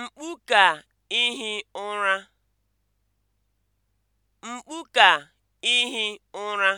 Mkpu ka ihi ụra. Mkpu ka ihi ụra.